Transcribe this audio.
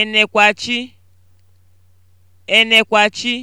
Enekwachi (Enekwachi)